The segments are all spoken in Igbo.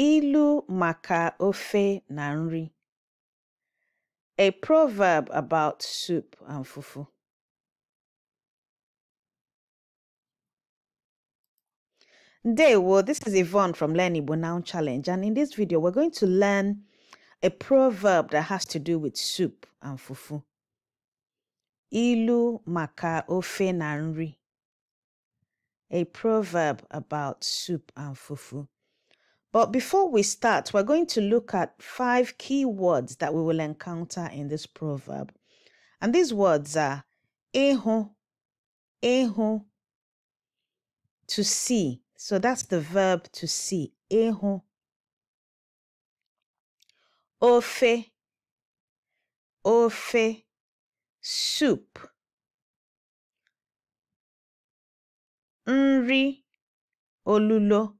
Ilu maka ofe na nri. A proverb about soup and fufu. well, this is Yvonne from Learn Igbo Now Challenge and in this video we're going to learn a proverb that has to do with soup and fufu. Ilu maka ofe na nri. A proverb about soup and fufu. But before we start, we're going to look at five key words that we will encounter in this proverb. And these words are eho, eho, to see. So that's the verb to see, eho. Ofe, ofe, soup. Nri, olulo.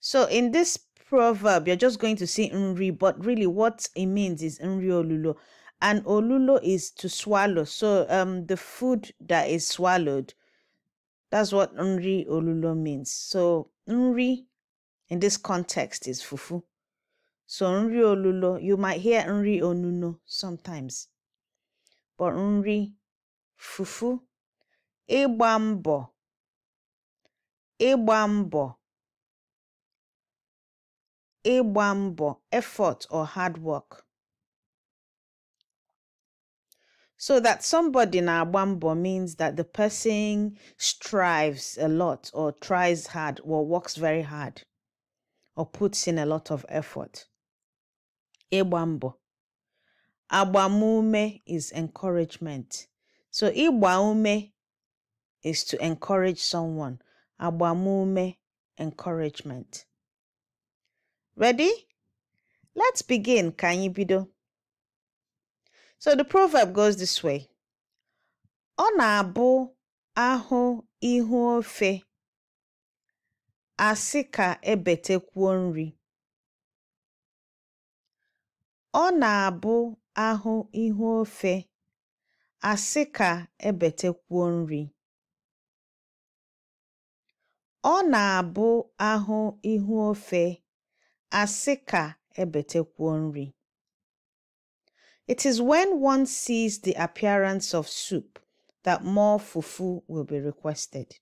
So in this proverb, you're just going to see Nri, but really what it means is Nri Olulo. And Olulo is to swallow. So um the food that is swallowed, that's what Nri Olulo means. So Nri in this context is fufu. So Nri Olulo, you might hear Nri Onuno sometimes. But Nri, fufu, ịgba mbọ, ịgba mbọ effort or hard work So that somebody na agbambo means that the person strives a lot or tries hard or works very hard or puts in a lot of effort. Igbambo. Agbamume is encouragement. So igbaume is to encourage someone. Agbamume, encouragement. Ready? Let's begin, ka anyị bido. So the proverb goes this way. Ọ na-abụ ahụ ihu ofe asị ka ebetekwuo nri. Ọ na ihu e nri. asị e ebetekwuo nri It is when one sees the appearance of soup that more fufu will be requested.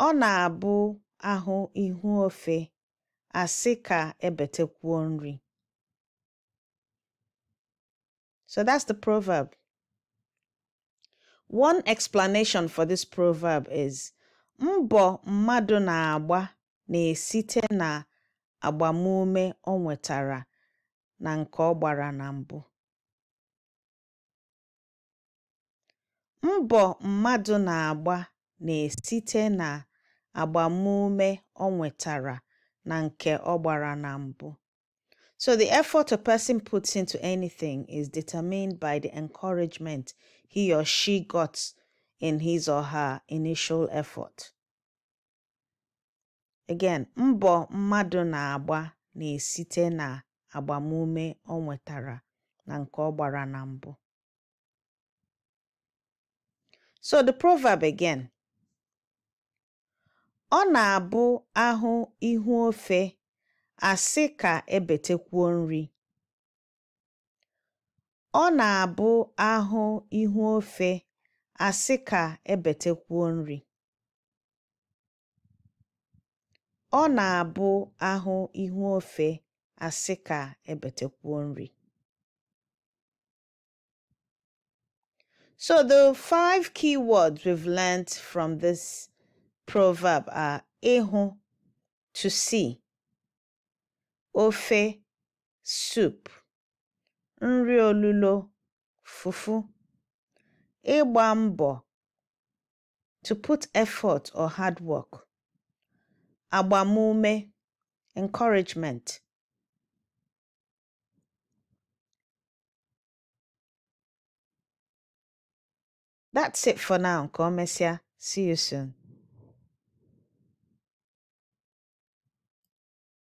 Ọ na-abụ ahụ ihu ofe asị ka nri. So that's the proverb. One explanation for this proverb is Mbọ mmadụ na-agba na-esite n'agbamume o nwetara na nke ọ gbara na mbụ. nwetara na nke ọ gbara na mbụ. So the effort a person puts into anything is determined by the encouragement he or she got in his or her initial effort. Again, mbọ mmadụ na-agba na-esite na agbamume ọ nwetara na nke ọ gbara na mbụ. So the proverb again. Ọ na-abụ ahụ ihu ofe asị ka ebetekwuo nri. Ọ na-abụ ahụ ihu ofe asị ka ebetekwuo nri ọ na-abụ ahụ ihu ofe asị ka ebetekwuo nri So the five key words we've learned from this proverb are ihu, to see, ofe, soup, nri olulo, fufu, ịgba mbọ to put effort or hard work agbamume encouragement that's it for now ka see you soon